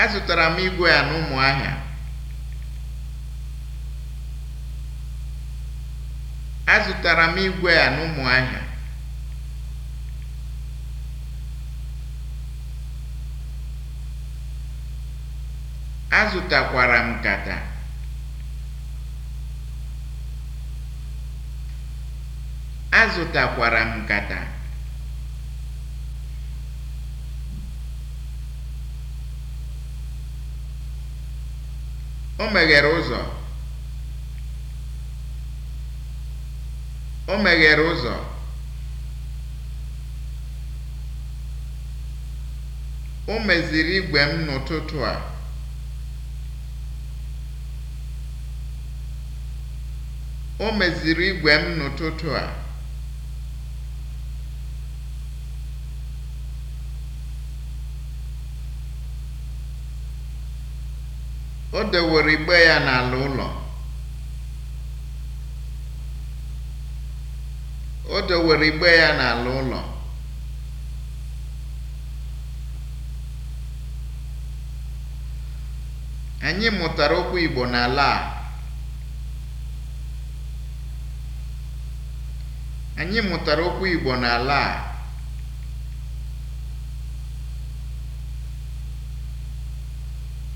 azụtara m igwe a n'ụmụahịa azụtara azụtakwara m azụtakwara m nkata o meghere ụzọ o meghere ụzọ o meziri igwe m m n'ụtụtụ a O dewere igbe ya n'ala ụlọ. O Anyị mụtara okwu Igbo n'ala okwu Igbo n'ala a.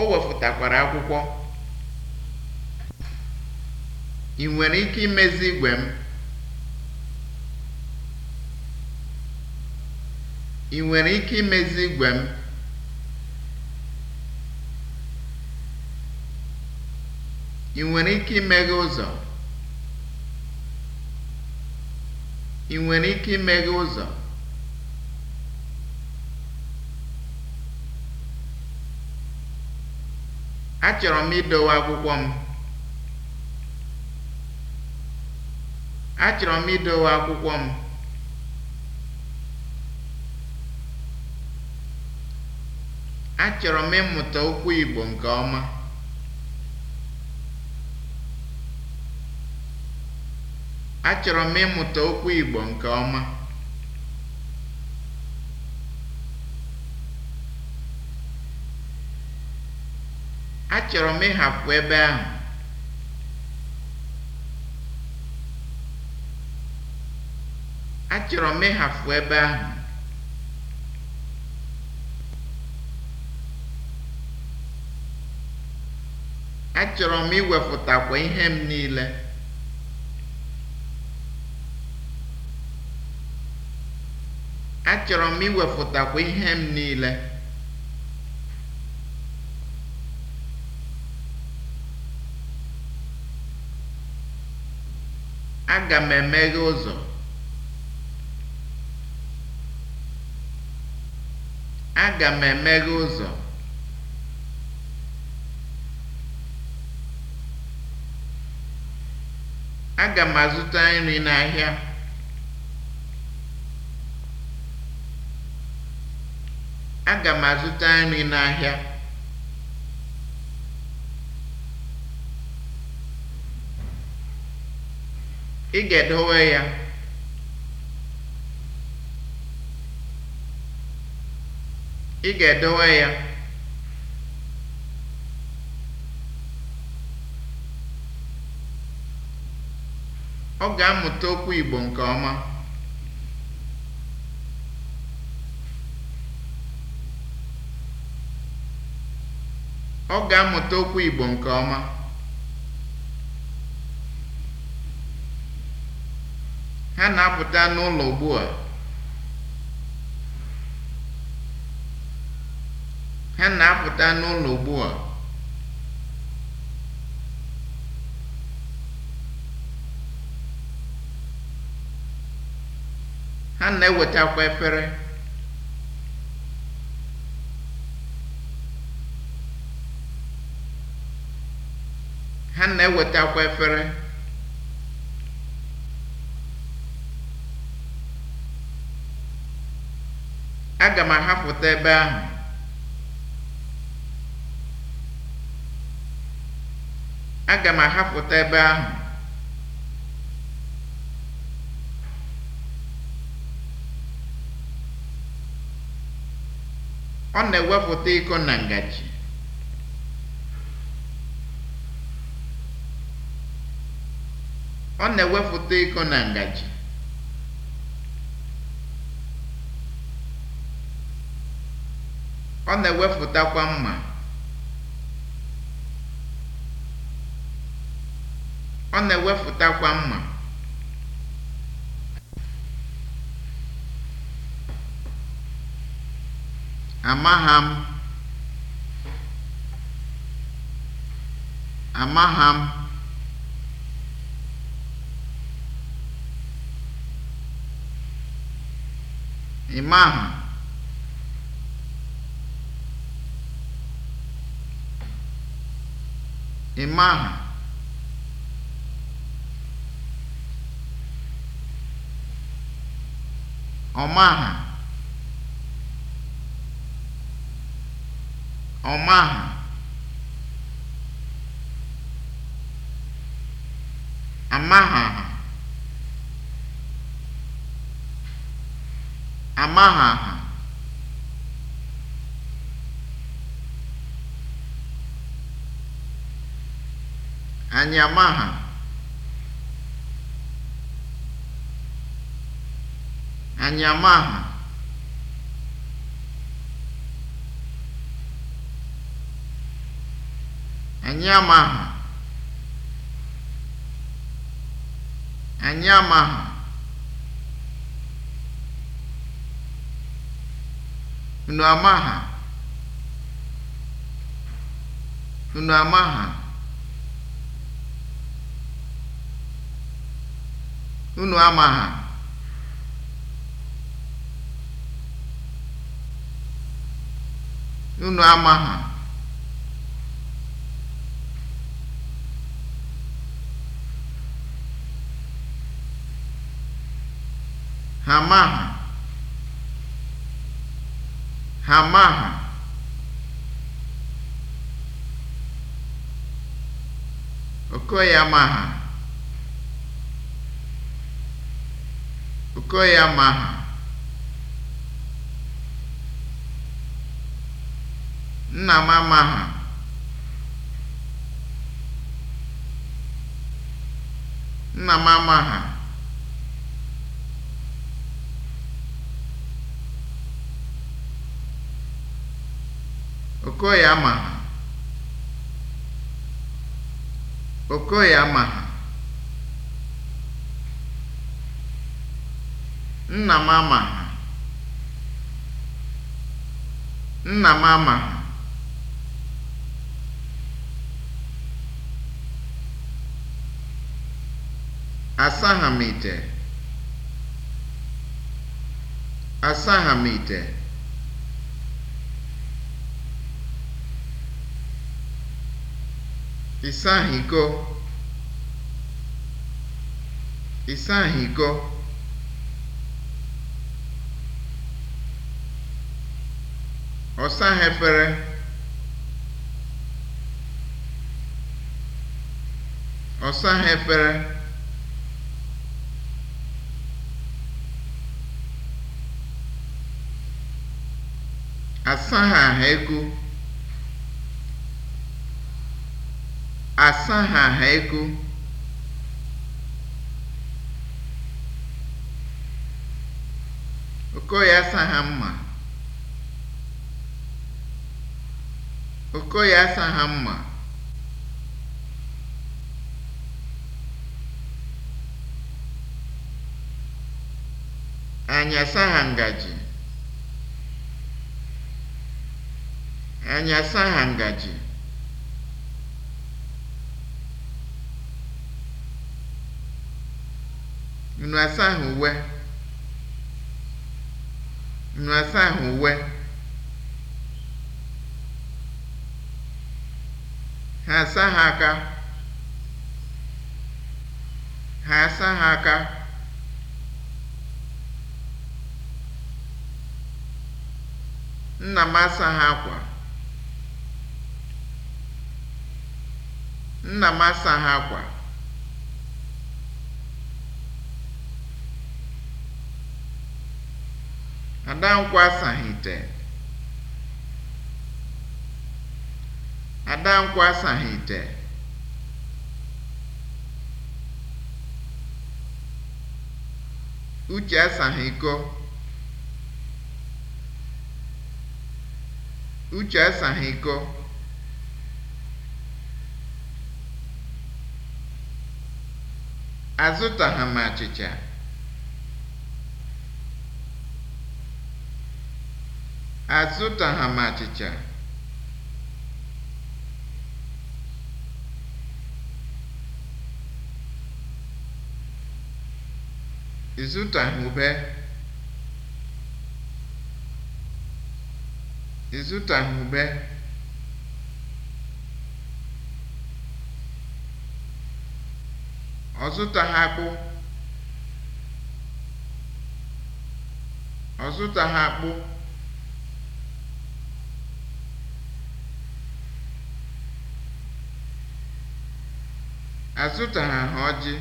o wefutakwara akwụkwọ ị nwere ike imezi igwe m ị nwere ike imezi igwe m ị nwere ike imeghe ụzọ ị nwere ike imeghe ụzọ achọrọ m idowe akwụkwọ m achọrọ m idowe akwụkwọ m achọrọ m ịmụta okwu Igbo nke ọma achọrọ m ịmụta okwu Igbo nke ọma Achọrọ m ịhapụ ebe ahụ. Achọrọ m ịhapụ ebe ahụ. Achọrọ m iwepụtakwa ihe m niile. Achọrọ m iwepụtakwa ihe m niile. Aga m emeghe ụzọ. Aga m emeghe ụzọ. Aga azụta nri Aga m azụta nri n'ahịa. ị ga-edowe ya ọ ga-amụta okwu ọ ga-amụta okwu Igbo nke ọma ha na-apụta n'ụlọ ugbu a ha na-apụta n'ụlọ ugbu a ha na-ewetakwa efere ha na-ewetakwa efere aga m ahapụta ebe ahụ aga m ahapụta ebe ahụ ọ na-ewepụta na na-ewepụta iko na ngaji Ọ na-ewepụtakwa mma. Ọ na-ewepụtakwa mma. Amaha m. Amaha m. Ịmaha. ị maha ọ maha amaha Yamaha Anyamaha Anyamaha Anyamaha Unu amaha Unu unu ha. unu ama ha Ha ma ha Ha ma ha. okoye ha. Gụọ ya Maha. Nna m ha! Nna m ha Okoye ha Okoye ha Nna m ama Nna m amaghị. m ite. Asaghị m iko. ọ saghị efere ọ saghị efere asaghị aha ego asaghị aha ego Okoye asaghị mma Okoye asaghị mma. Anyị asaghị ngaji. Anyị asaghị ngaji. Unu asaghị uwe. Unu asaghị uwe. asa ha aka ha asa ha aka nna m asa ha akwa nna m asa ha akwa Adankwụ asaghị ite Adankwụ asaghị ite. Uche asaghị iko. Uche asaghị iko. Azụtaghị m achịcha. Azụtaghị m achịcha. Ịzụta du Ọzụta ha kpụ. du dein ha Ọ akpụ. ha ọjị.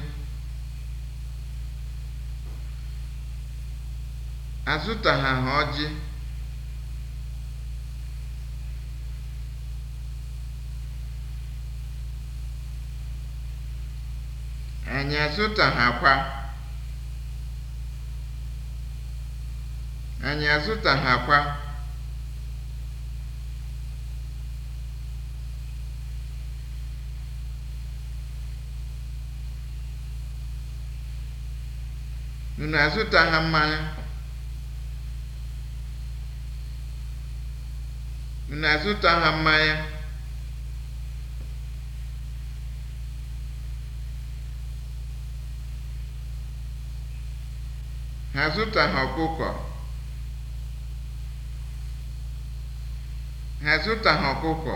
azụtaghị ọjị. Anyị azụtaghakwa. Anyị azụtaghakwa. Unu azụtaghị mmanya? na-azụta ha mmanya ha zụta ha ọkụkọ ha zụta ha ọkụkọ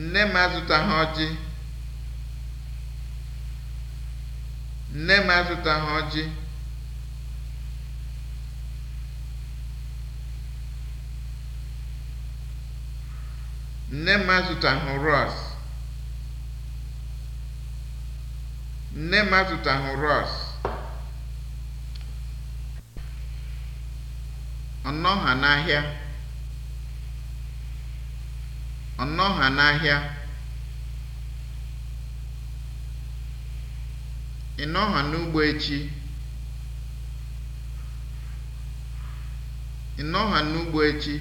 nne m azụta ha ọjị nne m azụta ha ọjị Nne m azụtaghị rọọsụ. Nne m azụtaghị rọọsụ. Ọ n'ahịa. Ọ n'ahịa. Ị nọgha n'ugbo echi? Ị nọgha n'ugbo echi?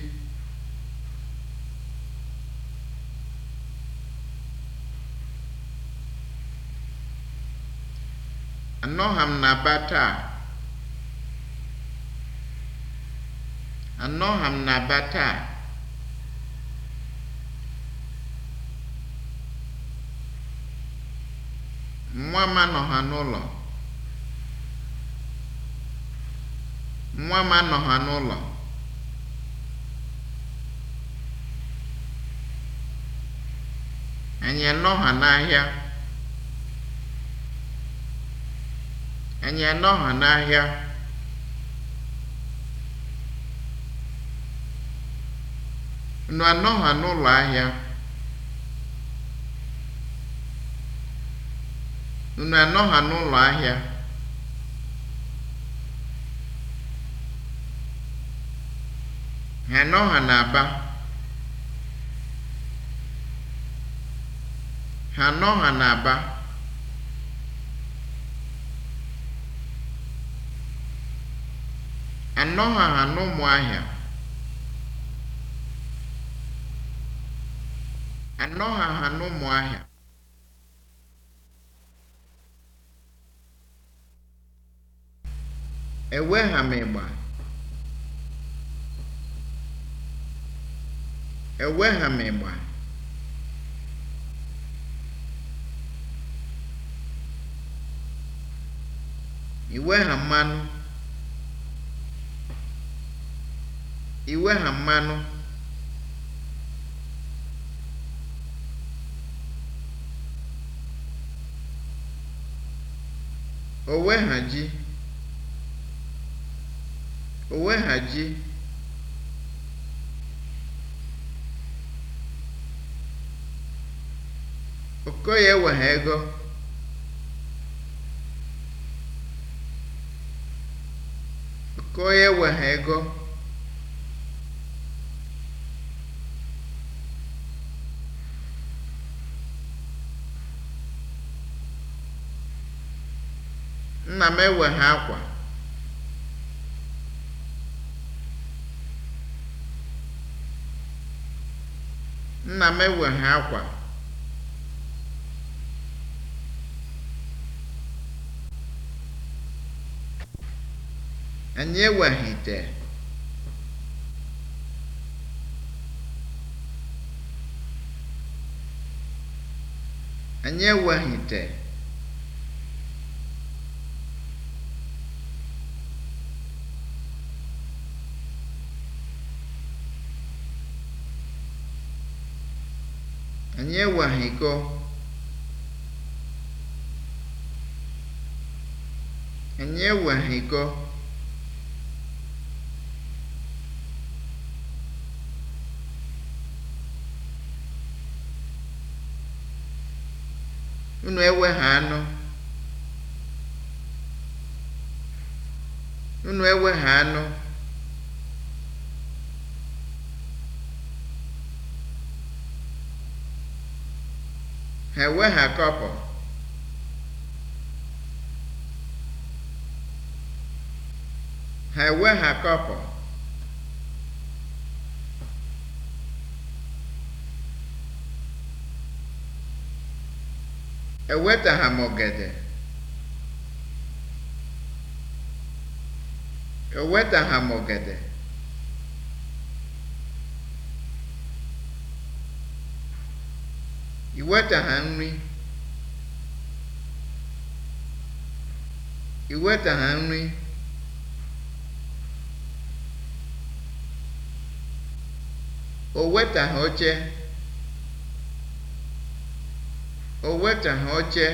Anọgha m na be taa. Anọgha m na be taa. Nwa m anọgha n'ụlọ. Nwa m anọgha n'ụlọ. Anyị anọgha n'ahịa. Anyị anọghọ n'ahịa. Unu anọghọ n'ụlọ ahịa. Unu anọghọ n'ụlọ ahịa. Ha anọghọ n'Aba. Ha anọghọ n'Aba. anọghị anọ Ụmụahịa anọghị anọ Ụmụahịa ha m ịgba ha m ịgba ha mmanụ iwe ha mmanụ owe ha ji owe ha ji okoye wegha ego okoye ha ego nna m eweghị akwa akwa anyị ewegha anyị enye Añehuajeko. Unu ewegha anụ. Unu anụ. ha eweghakọpụ ha Ha ha eweghakọpụ ewetaha m ogede ewetaha m ogede iweta ha nri i wetaha nri o wetaha oche o wetaha oche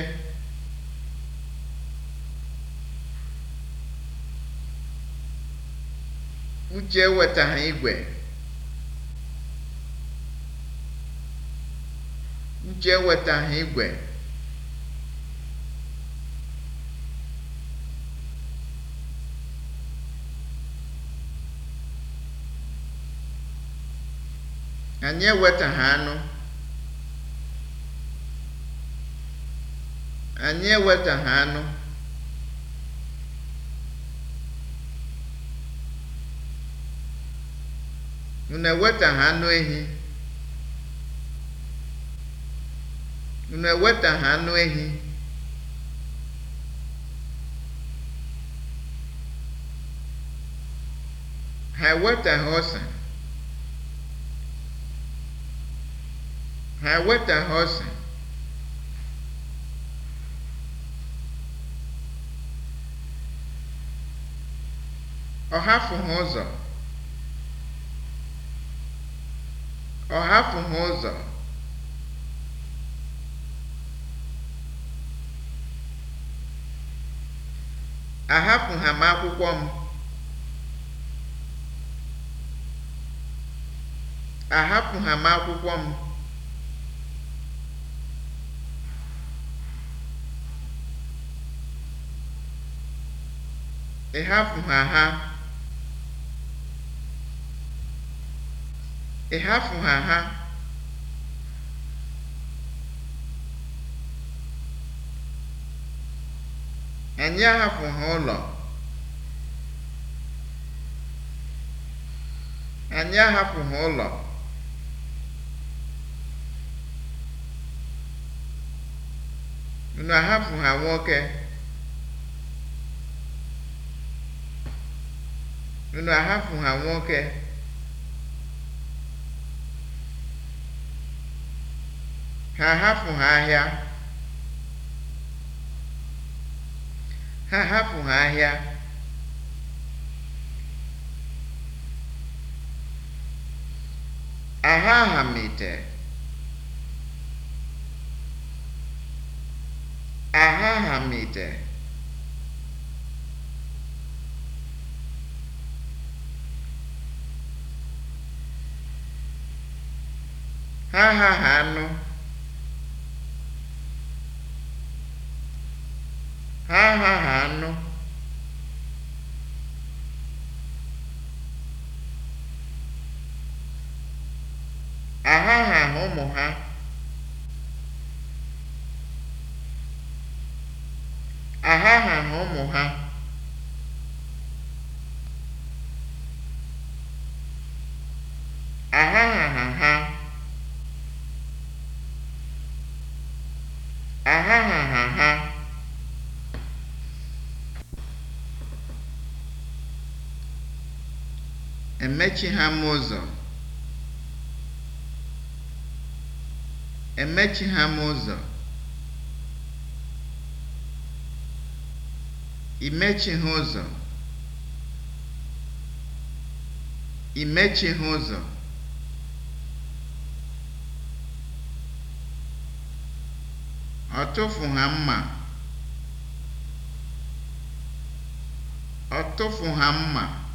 Uche ha igwe Uche ewetaghị igwe. Anyị ewetaghị anụ. Anyị ewetaghị anụ. Unu ewetaghị anụ ehi. unu eweta ha anụ ehi ha ha ọsa ha ha ọsa ọ hafụghị ụzọ ọ hafụghị ụzọ ahapụ ha m akwụkwọ m ahapụ ha m akwụkwọ m ịhapụ ha ha ịhapụ ha ha Anyị ahapụghị ụlọ. Anyị ahapụghị ụlọ. Unu ahapụha nwoke? Unu ahapụha nwoke? Ha ahapụghị ahịa. ha hapụ ha ahịa aha aha mite aha aha mite ha ha ha anụ ụmụ ha ahahaha ụmụ ha ahahaha ha na ha emechi ha m ụzọ ha m ụzọ. Ị ha ụzọ. Ị ha ụzọ. Ọtụfu ha mma. Ọtụfu ha mma.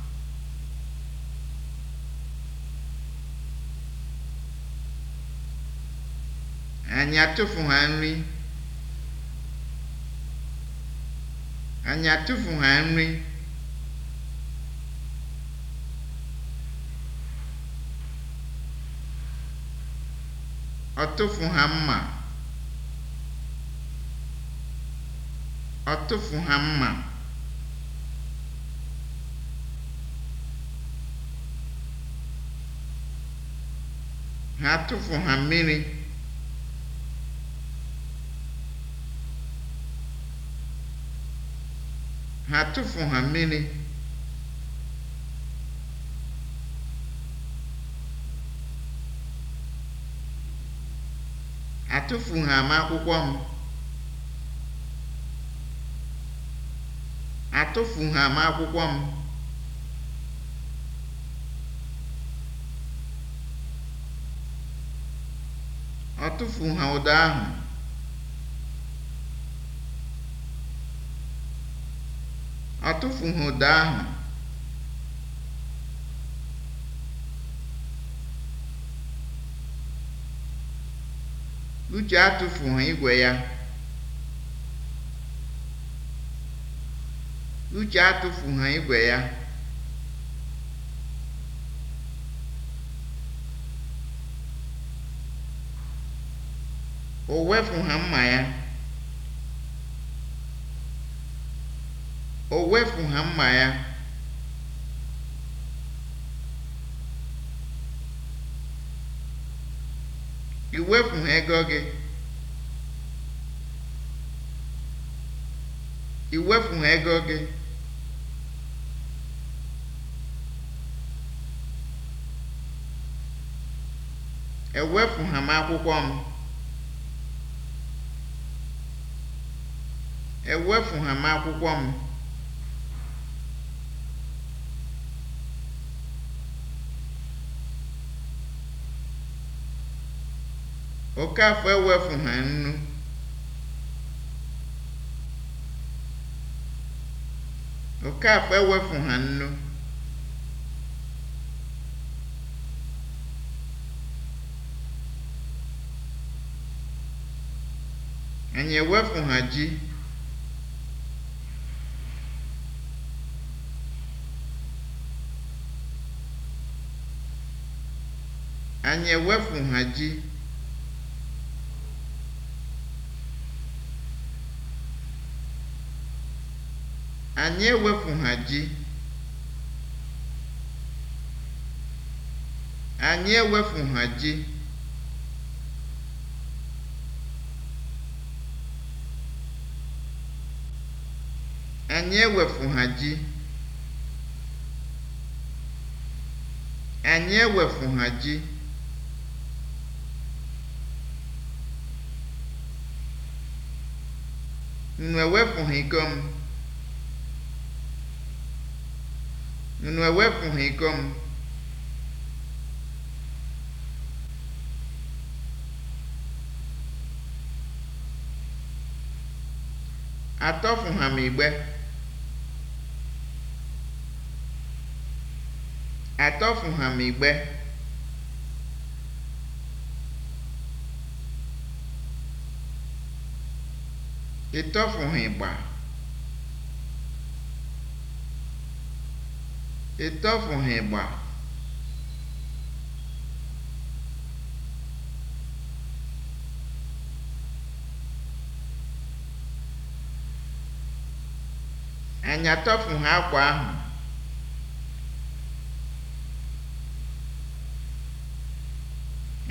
Anyị atụfu ha nri. Anyị atụfu ha nri. Ọ ha mma. Ọ ha mma. Ha atụfu ha mmiri. ha tụfu ha mmiri atụfu ha m akwụkwọ m atụfu ha m akwụkwọ m ọ ha ụda ahụ Atụfughị ụda ahụ. Uche atụfughị igwe ya. Uche atụfughị igwe ya. O wefughị mma ya. o wepụ ha mma ya ị ha ego gị ị ha ego gị ewepụ ha m akwụkwọ m ewepụ ha m akwụkwọ m Okafọ ewefughi nnu. Okafọ ha nnu. Anyị ha ji. Anyị ha ji. Anyị ewepụ ha ji, Anyị ewepụ ha ji. Anyị ewepụ ha ji, Anyị ewepụ ha ji. Unu ewepụghị iko m. unu ewepụghị iko m atọfụha m igbe atọfụha m igbe ha ịgba ịtọfụghị gba anyị atọfụghị akwa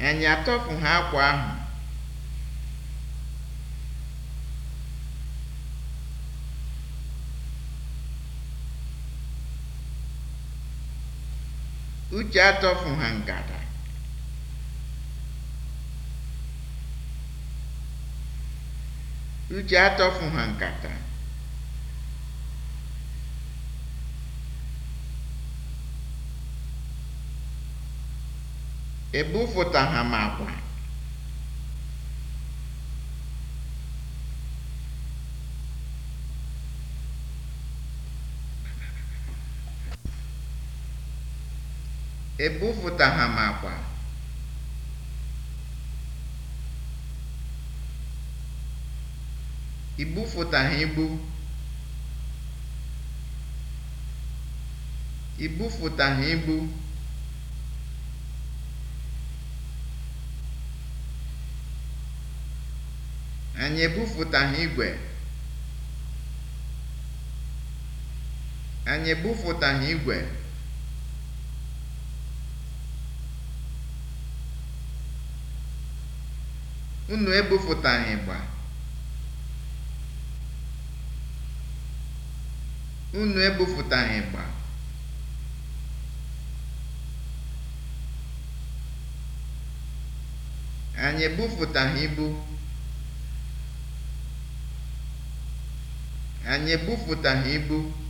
ahụ akwa ahụ Uche atọfu ha ngada. Uche ha nkata. Ebufụta ha Ebupụtaha m akpa. I bufụtaghị ibu. I bufụtaghị ibu. Anyị ebufụtaghị igwe. Anyị ebufụtaghị igwe. Unu ebupụtaghị ịgba. Unu Anyị ebupụtaghị ibu. Anyị ibu.